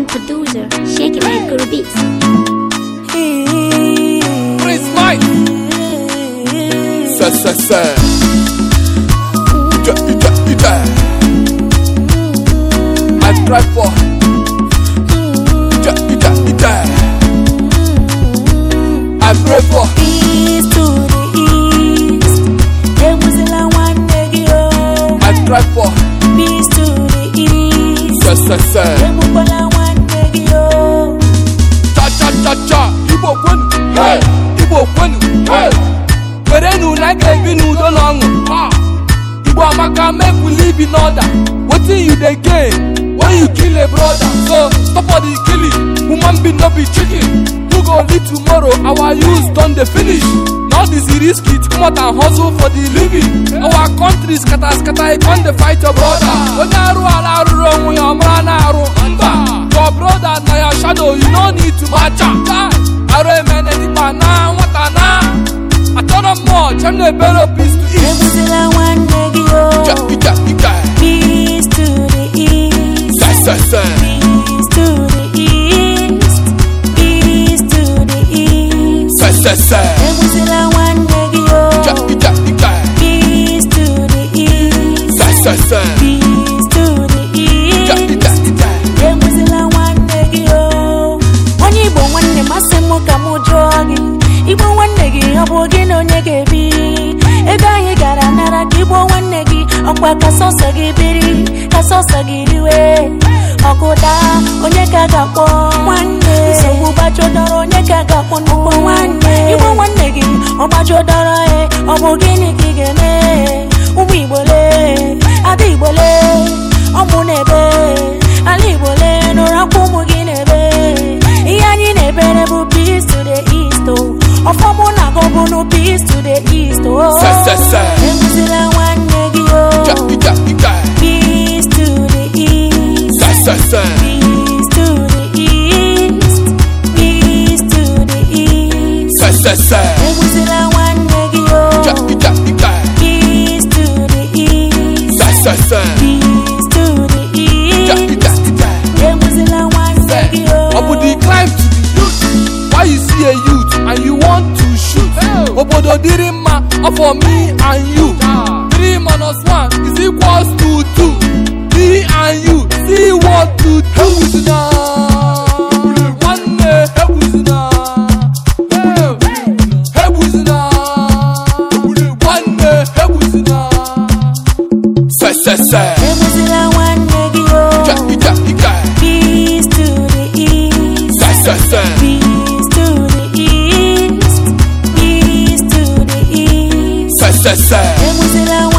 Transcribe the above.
Indian producer, Shake It Like Guru Beats. Prince Mike. I for. I pray for. Peace to the east. I for. Peace to the east. were werenu na aka ebi n'udo na ọṅụ igbo amaka mepụla ibi n'ọda wetin you dey gain when you kill a broda. so stop all di killing woman bin no be chicken who go live tomorrow our youth don dey finish na all this risky to comot and hustle for di living our country scatter scatter e con dey fight your brother onye arụ ala arụrụ onwe ya ọmara na arụ your broda na your shadow you no need to match am chanebere peace to east. Ebuzila nwanne gị o. Peace to the east. Yes, Peace to the east. Peace to the east. Yes, yes, yes. Ebuzila nwanne gị o. Ike Peace to the east. Yes, to the east. nwanne gị o. Onye Igbo nwanne masị m ka m jụọ gị. Igbo gị ọ bụ gị na onye ga-ebi ebe anyị gara nara ka igbo nwanne gị ọkwa ka sọsọ gị biri ka sọsọ gị riwe ọgụda onye ka ga-akpọ nwanne nsogbu gbajodọrọ onye ka ga-akpọ n'ụgbọ nwanne igbo nwanne gị ọ gbajodọrọ e ọ bụ gịnị ka ị ga-eme emzila nwanne gị nwanne gị to the east why you see a youth and you obodo dịrị mma ọfọ me and you 3 minus 1 is equals to 2 me and you see what to do now. sẹ nécessaire.